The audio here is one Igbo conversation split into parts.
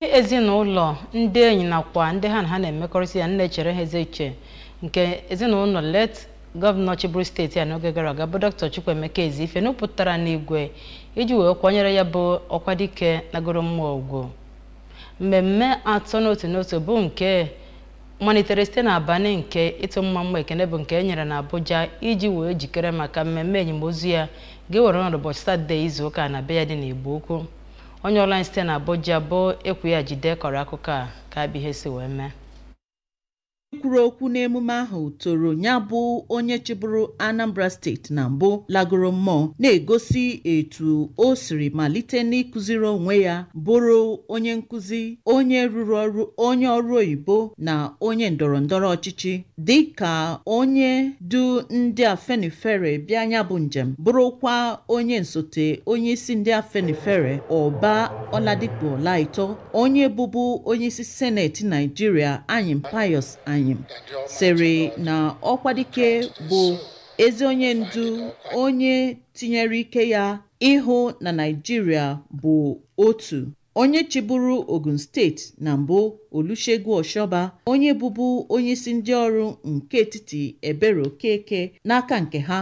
ndị ezinụlọ ndị enyi nakwa ndị ha na ha na-emekọrịta ya nne echere ha eze iche nke ezinụlọ let gọvanọ chibụrụ steeti a n'oge gara aga bụ dr chukwuemeka ife nupụtara n'igwe iji wee kwanyere ya bụ ọkwa dike nagoro mmụọ ugwu mmemme atọ n'otu n'otu bụ nke malitere site n'abalị nke ịtụ mma mma ekene bụ nke e nyere n'Abuja iji wee jikere maka mmemme enyemozu ya ga-ewere ọnọdụ ụbọchị satọde izu ụka na be ya dị n'Igbo Ukwu onye ọla anyị site na Abuja bụ ya Jide kọrọ akụkọ a ka bụ ihe si wee mee onye kwuru okwu n'emume ahụ toro ya bụ onye chịbụrụ Anambra steeti na mbụ lagoro mmụọ na-egosi etu o siri malite n'ịkụziri onwe ya bụrụ onye nkụzi onye rụrụ ọrụ onye ọrụ oyibo na onye ndọrọndọrọ ọchịchị dị ka onye du ndị Afenifere bịa ya bụ njem bụrụkwa onye nsote onye isi ndị Afenifere Ọba Ọladipo Ọlaitọ onye bụbu onye isi Seneti Naijiria anyị Pius anyị. anyị sịrị na ọkwadike bụ ezi onye ndu onye tinyere ike ya ịhụ na Naịjirịa bụ otu onye chịburu Ogun steeti na mbụ Olusegun oshoba onye bụbu onye isi ndị ọrụ nke etiti Ebere Okeke n'aka nke ha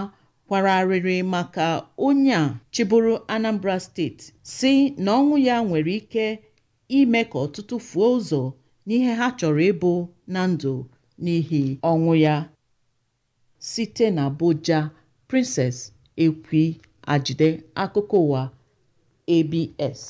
kwara arịrị maka onye a chịburu Anambra steeti si na ọnwụ ya nwere ike ime ka ọtụtụ fuo ụzọ n'ihe ha chọrọ ịbụ na ndụ n'ihi ọnwụ ya site na Abuja Princess Ekwi ajide akụkọ ụwa ABS